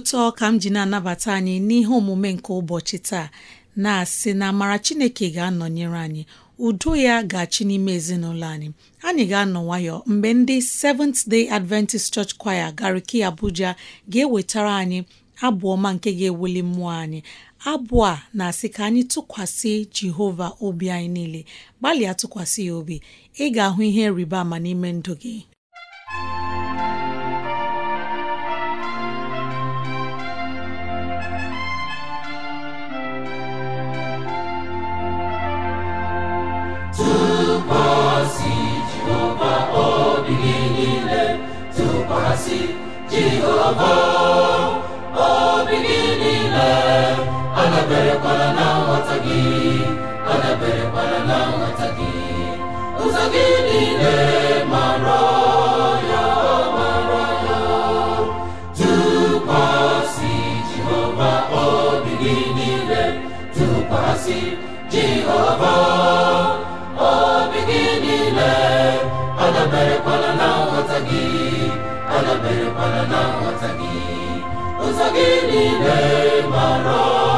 ụtọ ka m ji na-anabata anyị n'ihe omume nke ụbọchị taa na-asị na amara Chineke ga-anọnyere anyị udo ya ga-achị n'ime ezinụlọ anyị anyị ga-anọ nwayọ mgbe ndị Seventh Day Adventist Church Choir Gariki Abuja ga-ewetara anyị abụọma nke ga-ewuli mmụọ anyị abụ a na-asị ka anyị tụkwasị Jehova obi anyị niile gbalịa tụkwasị ya obi ị ga-ahụ ihe rịba ama n'ime ndụ gị isi jehova obi gị niile adaberekwala na nghọta gị adaberekwala na nghọta gị ụzọ gị niile mara ya mara ya tụkwasị jehova obi gị niile tụkwasị jehova obi gị niile adaberekwala na nghọta gị daberekwala na nghọta gị ụzọ gị niile mara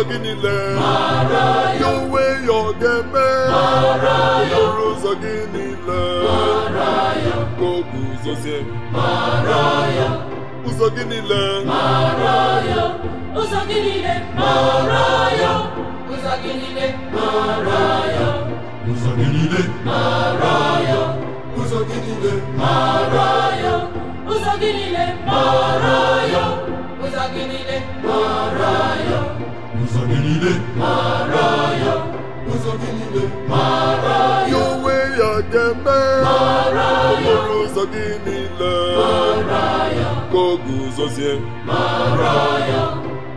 ụzọ gị niile ya onwe ya ọ ga-eme okporo ụzọ gị niile ka o guzozie ụzọ ụzọ gị niile ụzọ gị niile ụzọ gị niile ụzọ gị niile ụzọ gị niile ụzọ gị niile mara ya ụzọ gị niile mara ya onwe ya ga-eme mara ya okporo ụzọ gị niile mara ya ka ọ guzozie mara ya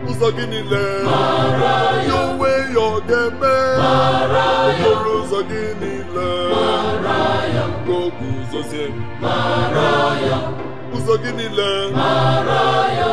ụzọ gị niile mara ya onwe ya ọ ga mara ya okporo ụzọ gị niile mara ya ka ọ mara ya ụzọ gị niile mara ya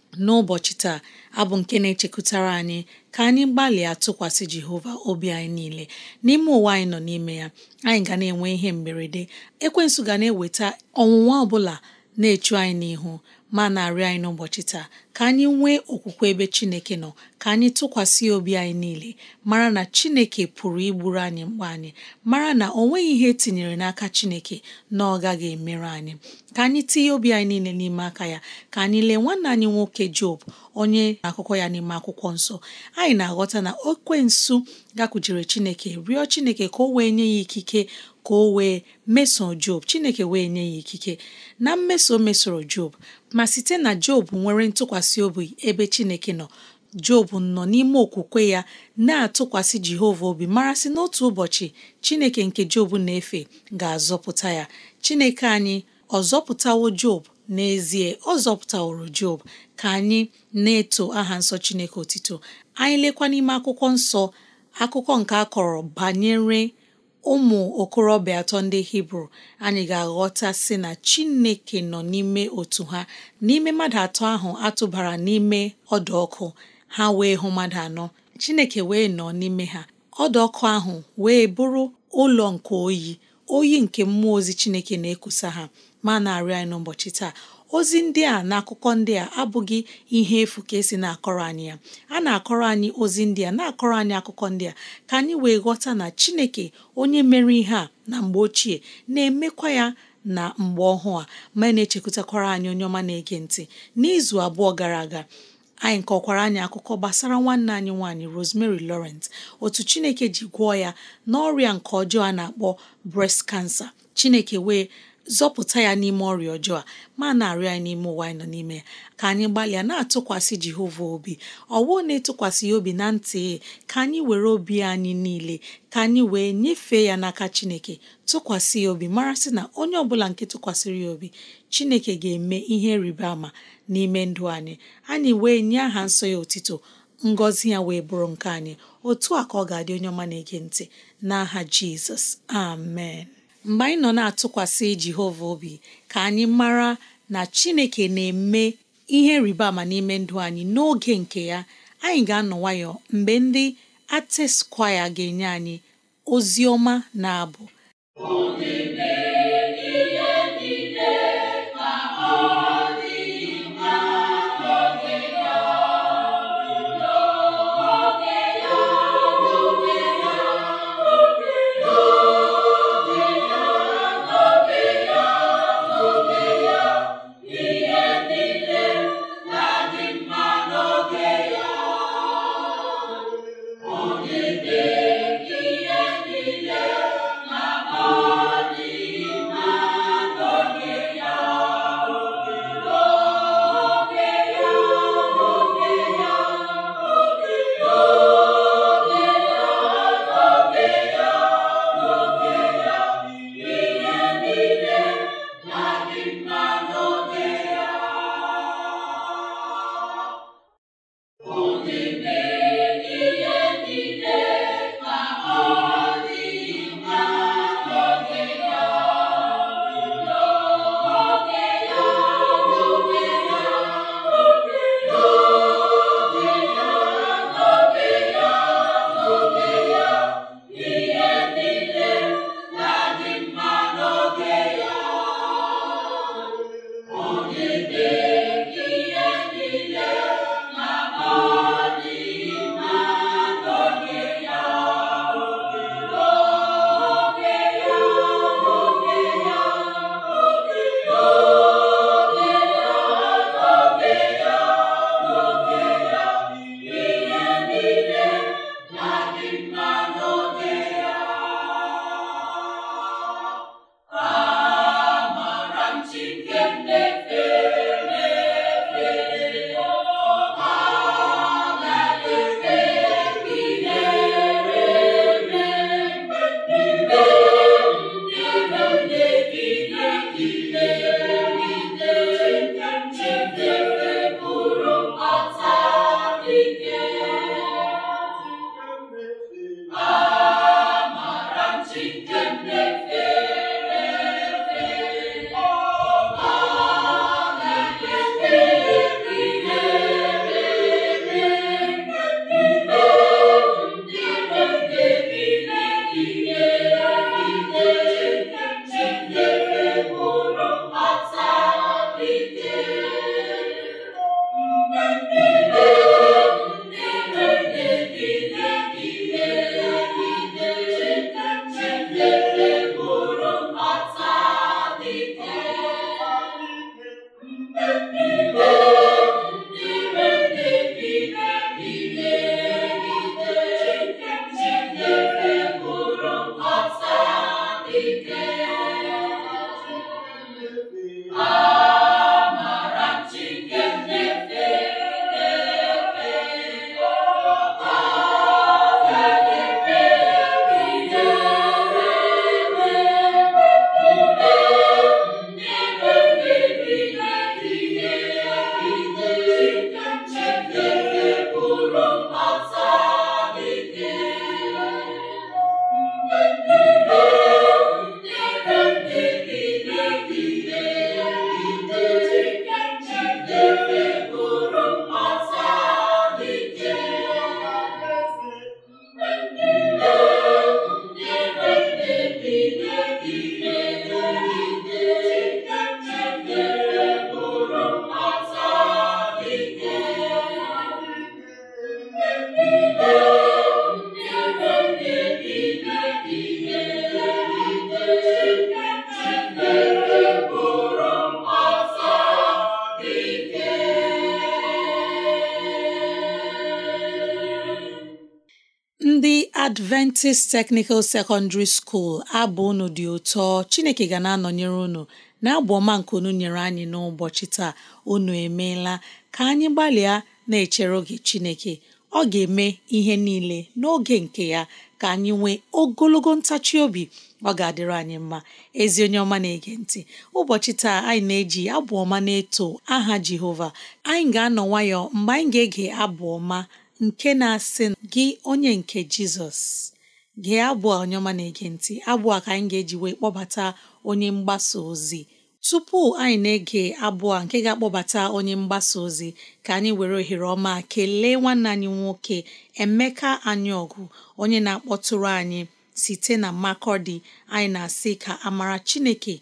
n'ụbọchị taa abụ nke na-echekwutara anyị ka anyị gbalịa tụkwasị Jehova obi anyị niile n'ime ụwa anyị nọ n'ime ya anyị ga na-enwe ihe mberede ekwensu ga na-eweta ọnwụnwa ọbụla na-echu anyị n'ihu ma na-arịọ anyị n'ụbọchị taa ka anyị nwee okwukwe ebe Chineke nọ ka anyị tụkwasị obi anyị niile mara na Chineke pụrụ igburu anyị mgbe anyị mara na o nweghị ihe etinyere n'aka Chineke na ọ gaghị emerụ anyị ka anyị tinye obi anyị niile n'ime aka ya ka anyị lee nwanne anyị nwoke Job onye akụkọ ya n'ime akwụkwọ nsọ anyị na-aghọta na okwensu gakwujere Chineke rịọ Chineke ka o wee nye ya ikike ka o wee meso Job Chineke wee nye ya ikike na mmeso mesoro Job ma site na Job nwere ntụkwasị obi ebe Chineke nọ Job nọ n'ime okwukwe ya na-atụkwasị Jehova obi marasị n'otu ụbọchị Chineke nke Job na-efe ga-azọpụta ya Chineke anyị ọ zọpụtawo Job n'ezie ọ zọpụtaworo Job ka anyị na-eto aha nsọ Chineke otito anyị lekwa n'ime akwụkwọ nsọ akụkọ nke a kọrọ banyere ụmụ okorobịa atọ ndị hibru anyị ga-aghọta sị na chineke nọ n'ime otu ha n'ime mmadụ atọ ahụ atụbara n'ime ọdụ ọkụ ha wee hụ mmadụ anọ chineke wee nọ n'ime ha ọdụ ọkụ ahụ wee bụrụ ụlọ nke oyi oyi nke mmụọ ozi chineke na-ekusa ha ma na-arịọ anyị n'ụbọchị taa ozi ndị a na akụkọ ndị a abụghị ihe efu ka esi na-akọrọ anyị ya a na-akọrọ anyị ozi ndị a na-akọrọ anyị akụkọ ndị a ka anyị wee ghọta na Chineke onye mere ihe a na mgbe ochie na-emekwa ya na mgbe ọhụụ a ma e na-echekwutakwara anyị onye ọma na-ege ntị n'izu abụọ gara aga anyị kọkwara anyị akụkọ gbasara nwanne anyị nwaanyị Rosemary Lawrence otu Chineke ji gwọọ ya n'ọrịa nke ọjọọ a na-akpọ breast cancer Chineke wee zọpụta ya n'ime ọrịa ọjọọ a ma na-arịọ anyị n'ime ụwa anyị nọ n'ime ya ka anyị gbalịa na-atụkwasị Jehova obi ọwụ na-etụkwasị ya obi na ntị ka anyị were obi anyị niile ka anyị wee nyefee ya n'aka Chineke tụkwasị ya obi mara sị na onye ọbụla nke tụkwasịrị ya obi Chineke ga-eme ihe rịba ama n'ime ndụ anyị anyị wee nye aha nsọ ya otito ngọzi ya wee bụrụ nke anyị otu a ka ọ ga-adị onye ọma na-ege ntị n'aha Jizọs amen mgbe anyị nọ na-atụkwasị Jehova obi ka anyị mara na Chineke na-eme ihe rịba ama n'ime ndụ anyị n'oge nke ya anyị ga-anọ nwayọ mgbe ndị Artist ga-enye anyị ozi ọma na abụ Adventist Technical Secondary School abụ unu dị ụtọ Chineke ga na-anọnyere unu na-abụ ọma nke unu nyere anyị n'ụbọchị taa unu emeela ka anyị gbalịa na-echere oge Chineke ọ ga-eme ihe niile n'oge nke ya ka anyị nwee ogologo ntachi obi ọ ga-adịrị anyị mma ezi onye ọma na-ege ntị ụbọchị taa anyị na-eji abụ ọma na-eto aha Jehova anyị ga-anọ nwayọọ mgbe anyị ga-ege abụ ọma nke na-asị gị onye nke Jizọs gee abụ onye ọma na-ege ntị abụ ka anyị ga-eji wee kpọbata onye mgbasa ozi tupu anyị na-ege abụ a nke ga-akpọbata onye mgbasa ozi ka anyị were ohere ọma kelee nwanne anyị nwoke Emeka ọgụ onye na-akpọtụrụ anyị site na Makọdị anyị na-asị ka amara Chineke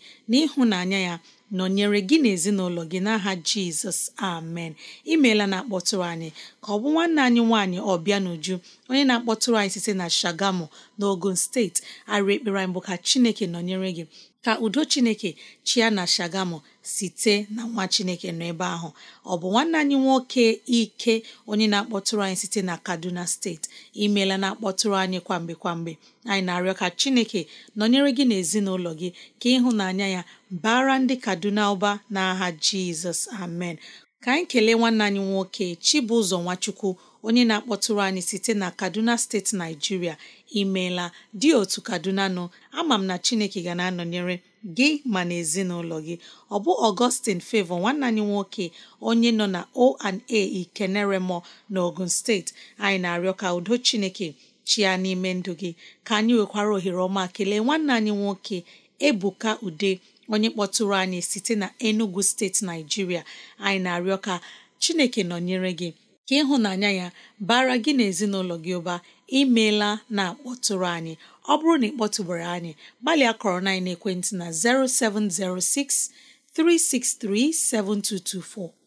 na ya nọnyere gị na ezinụlọ gị n'aha jizọs amen imeela na-akpọtụrụ anyị ka ọ bụ nwanne anyị nwaanyị ọbịa n'uju onye na-akpọtụrụ anyị site na shagamu na ogun steeti a ekpere anyị bụ ka chineke nọnyere gị ka udo chineke chia na shagamu site na nwa chineke nọ ebe ahụ ọ bụ nwanne anyị nwoke ike onye na-akpọtụrụ anyị site na kaduna steeti imeela na-akpọtụrụ anyị kwamgbe kwamgbe anyị na-arịọ ka chineke nọnyere gị n'ezinụlọ gị ka ịhụnanya ya bara ndị kaduna ụba n'aha jizọs amen ka anyị kelee nwanne anyị nwoke chibụzọ nwachukwu onye na-akpọtụrụ anyị site na kaduna steeti naijiria imeela dị otu kaduna nọ ama m na chineke ga na-anọnyere gị ma na ezinụlọ gị ọ bụ Augustine Favour nwanne anyị nwoke onye nọ na O&A Ikeneremo n'Ogun steeti anyị na-arịọ ka udo Chineke chia n'ime ndụ gị ka anyị nwekwara ohere ọma kelee nwanne anyị nwoke Ebuka Ude onye kpọtụrụ anyị site na Enugu steeti Naijiria anyị na-arịọ ka Chineke nọnyere gị ka ịhụnanya ya bara gị na ezinụlọ gị ụba imeela na-akpọtụrụ anyị ọ bụrụ na ị kpọtụbere anyị gbalịa kọrọ na ekwentị na 0706 363 7224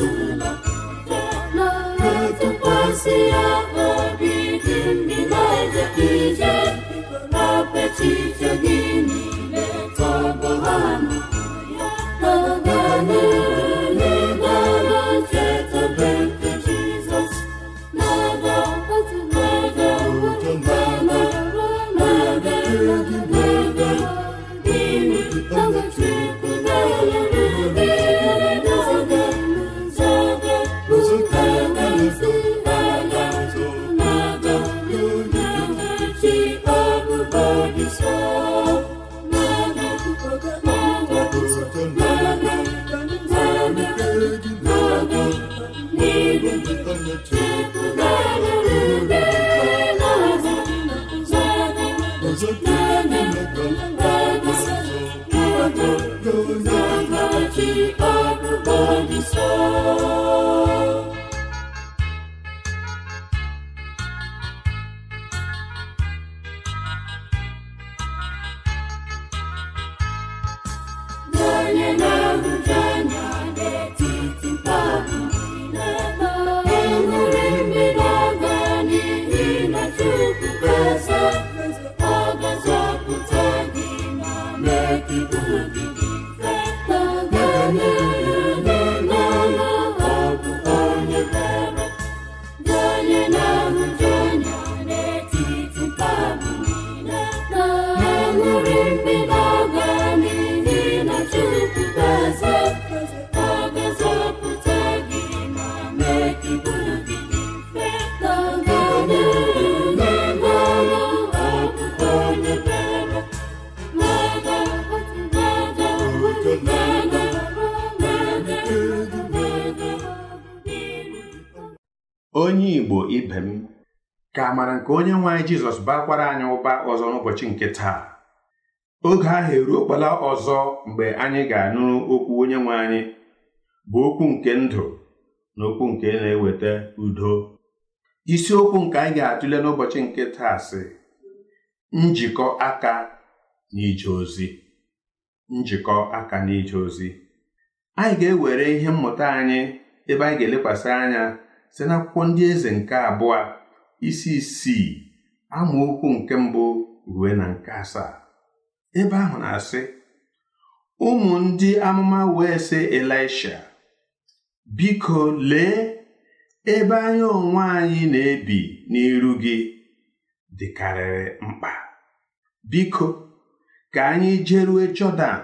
tu soul. amara nke onye nwe anyị jizọs bakwara anyị ụba ọzọ n'ụbọchị nke taa oge ahụ okpala ọzọ mgbe anyị ga-anụ okwu onye nwe anyị bụ okwu nke ndụ na okwu nke na-eweta udo isiokwu nke anyị ga-atụle n'ụbọchị nke taa sị njikọ aka ije ozi njikọ aka ije ozi anyị ga-ewere ihe mmụta anyị ebe anyị ga-elekwasị anya site n'akwụkwọ ndị eze nke abụọ isi isii amaokwu nke mbụ ruo na nke asaa ebe ahụ na-asị ụmụ ndị amụma wee sị Elisha biko lee ebe anyị onwe anyị na-ebi n'iru gị dịkarịrị mkpa biko ka anyị jerue Jọdan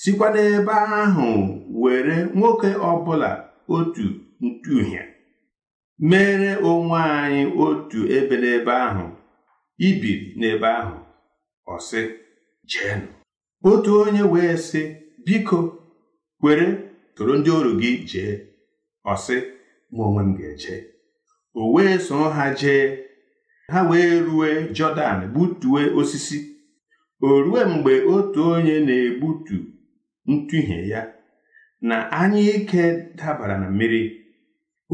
sikwa n'ebe ahụ were nwoke ọbụla otu ntu mere onwe anyị otu ebe n'ebe ahụ ibiri n'ebe ahụ ọ sị otu onye wee sị biko kwere tụrụ ndị ọrụ gị jee ọ sị mụ onwe m ga-eje o wee soro ha jee ha wee rue jọdan gbutue osisi o rue mgbe otu onye na-egbutu ntụhie ya na anya ike dabara na mmiri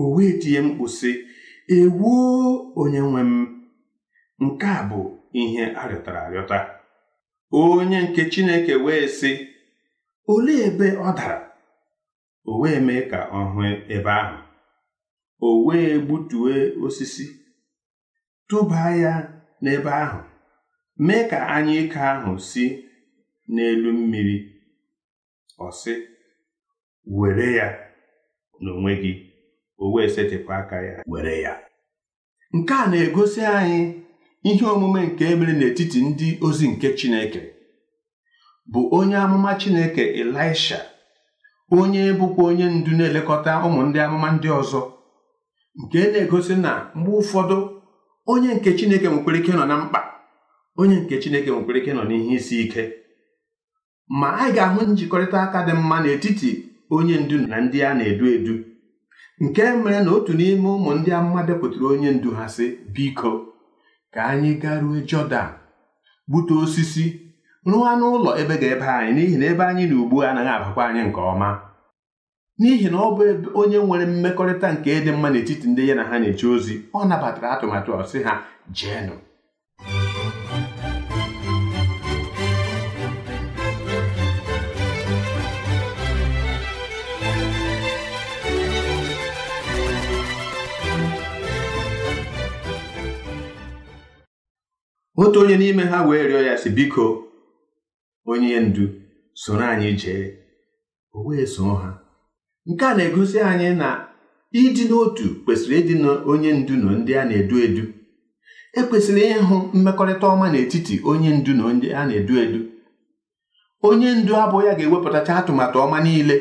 o wee tie mkpu sị ewoo onye nwe m nke a bụ ihe arịọtara arịọta onye nke Chineke wee sị olee ebe ọ dara o wee mee ka ọ hụ ebe ahụ o wee gbutue osisi tụbaa ya n'ebe ahụ mee ka ike ahụ si n'elu mmiri ọ sị were ya n'onwe gị o wee setịpụ aka ya were ya nke a na-egosi anyị ihe omume nke emere n'etiti ndị ozi nke Chineke bụ onye amụma Chineke Elisha onye bụkwa onye ndu na-elekọta ụmụ ndị amụma ndị ọzọ nke na-egosi na mgbe ụfọdụ onye nke Chineke nwekwara ike nọ na mkpa onye nke Chineke nwekwara ike nọ n'ihe isi ike ma anyị ga-ahụ njikọrịta aka dị mma n'etiti onye ndu na ndị a na-edu edu nke mere na otu n'ime ụmụ ndị amụma depụtara onye ndu ha sị biko ka anyị garue Jọdan gbute osisi rụọ anụ ụlọ ebe ga-ebe anyị n'ihi na ebe anyị na ugbu a anaghị abakwa anyị nke ọma n'ihi na ọ bụ onye nwere mmekọrịta nke ịdị mma n'etiti ndị ya na ha na-eche ozi ọ nabatara atụmatụ ọsị ha jeenụ otu onye n'ime ha wee rịọ ya sị biko onye ndu soro anyị jee o wee soo ha nke a na-egosi anyị na ịdị n'otu kwesịrị ịdị n'onye ndu na ndị a na-edu edu ekwesịrị ịhụ mmekọrịta ọma n'etiti onye ndu na ndị a na-edu edu onye ndu abụọ ya ga-ewepụtacha atụmatụ ọma niile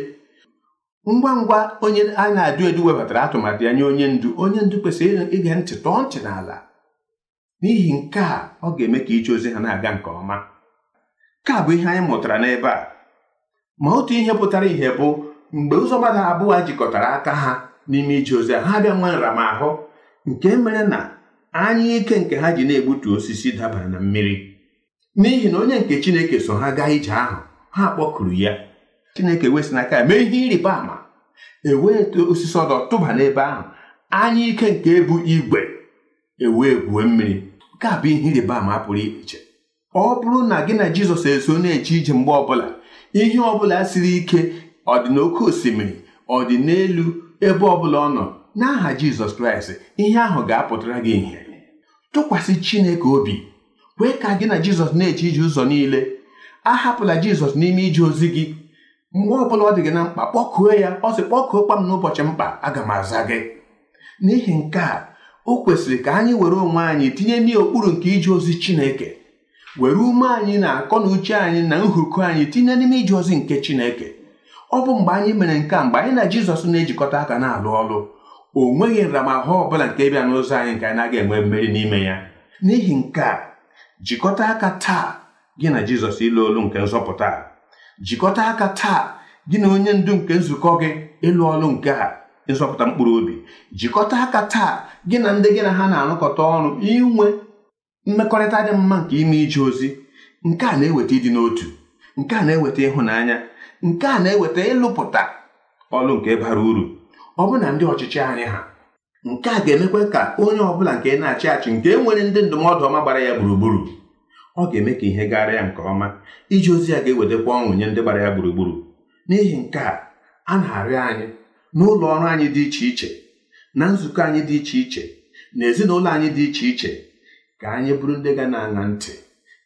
ngwa ngwa onye a na-edu edu webatara atụmatụ ya nye onye ndu onye ndu kwesịrị ịga ntị tọọ ntị n'ala n'ihi nke a ọ ga-eme ka ije ozi ha na-aga nke ọma nke a bụ ihe anyị mụtara n'ebe a ma otu ihe pụtara ihe bụ mgbe ụzọ mmadụ abụọ jikọtara aka ha n'ime ije ozi ha bịa nwe nramahụ nke mere na anya ike nke ha ji na-egbutu osisi dabara na mmiri n'ihi na onye nke Chineke so ha gaa ije ahụ ha kpọkuru ya Chineke wesị n'aka ya mee ihe ịrịba ama ewee osisi ọdọ tụba n'ebe ahụ anya ike nke bụ igwe ewee gwuo mmiri nke a bụ ihe ịrịba ama pụrụ iche ọ bụrụ na gị na jizọs eso na-eche ije mgbe ọbụla ihe ọbụla siri ike ọ dị n'oké osimiri ọ dị n'elu ebe ọbụla ọ nọ n'aha jizọs kraịst ihe ahụ ga-apụtara gị ihe tụkwasị chineke obi kwee ka gị na jizọs na-eche ije ụzọ niile ahapụla jizọs n'ime ije ozi gị mgbe ọbụla ọ dị gị na mkpa kpọkuo ya ọ sị kpọkuo kpa m n'ụbọchị mkpa aga m aza gị n'ihi nke a o kwesịrị ka anyị were onwe anyị tinye ndị okpuru nke ije ozi Chineke were ume anyị na akọ na uche anyị na nhuku anyị tinye n'ime ije ozi nke Chineke ọ bụ mgbe anyị mere nke a mgbe anyị na Jizọs na-ejikọta aka na-alụ ọrụ o nweghị nramahụ ọ bụla nke bịa n'ụzọ anyị nke anyị naghị enwe mmeri n'ime ya n'ihi nke a jikọta aka taa gị na Jizọs ịlụ olu nke nzọpụta jikọta aka taa gị na onye ndu nke nzukọ gị ịlụ ọrụ nke a ịzọpụta mkpụrụ obi jikọta aka taa gị na ndị gị na ha na-arụkọta ọrụ inwe mmekọrịta dị mma nke ime ije ozi nke a na-eweta ịdị n'otu nke a na-eweta ịhụnanya nke a na-eweta ịlụpụta ọrụ nke bara uru ọ bụ na ndị ọchịchị anyị ha nke a ga-emekwa ka onye ọbụla nke na-achị achị nke nwere ndị ndụmọdụ ọma gbara ya gburugburu ọ ga-eme ka ihe gara ya nke ọma ije ozi ya ga-ewetakwa ọṅụ nye ndị gbara ya gburugburu n'ihi nke a a na-arịọ anyị n'ụlọ ọrụ anyị dị iche iche na nzukọ anyị dị iche iche na ezinụlọ anyị dị iche iche ka anyị bụrụ ndị ga na-aṅa ntị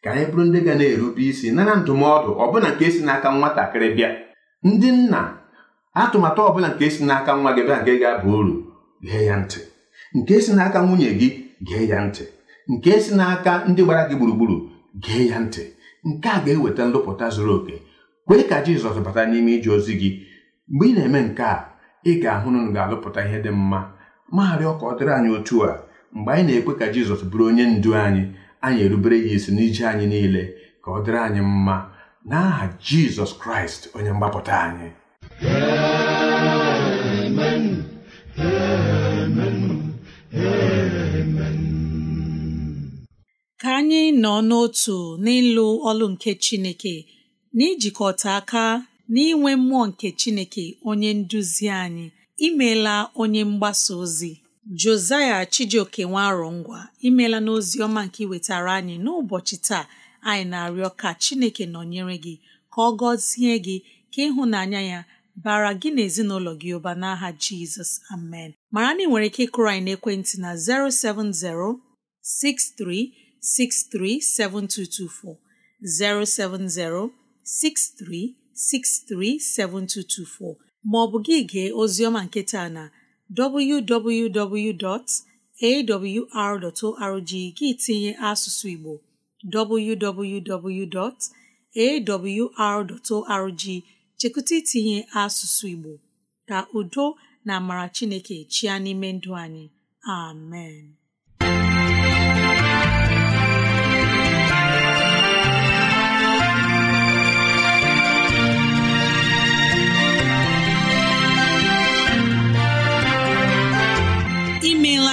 ka anyị bụrụ ndị ga na-erube isi nara ndụmọdụ ọbụla nke si n'aka nwatakịrị bịa ndị nna atụmatụ ọbụla nke si n'aka nwa gị bịa nke ga-aba uru gee ya ntị nke si n'aka nwunye gị gee ya ntị nke si n'aka ndị gbara gị gburugburu gee ya ntị nke a ga-eweta nlụpụta zuru oke kwee ka Jizọs bata n'ime ije ozi gị mgbe ị na-eme nke a ị ga-ahụ na unu ga-alụpụta ihe dị mma magharịọ ka ọ dịrị anyị otu a mgbe anyị na-ekwe ka Jizọs bụrụ onye ndu anyị anyị erubere ya isi n'ije anyị niile ka ọ dịrị anyị mma n'aha Jizọs Kraịst onye mgbapụta anyị amen amen amen ka anyị nọ n'otu n'ịlụ ọlụ nke Chineke n'ijikọta aka n'inwe mmụọ nke Chineke onye nduzi anyị imeela onye mgbasa ozi Josaya Chijioke nwarọngwa imeela n'ozi ọma nke iwetara anyị n'ụbọchị taa anyị na-arịọ ka Chineke nọnyere gị ka ọ gọzie gị ka ịhụnanya ya bara gị na ezinụlọ gị ụba n'aha Jizọs amen mara na ị nwere ike ịkụrọ anyị n'ekwentị na 070 6363 7224 070 63 637224 maọbụ gị gee ozioma nketa na www.awr.org gị tinye asụsụ Igbo www.awr.org chekụta itinye asụsụ Igbo ka udo na amara Chineke chia n'ime ndụ anyị amen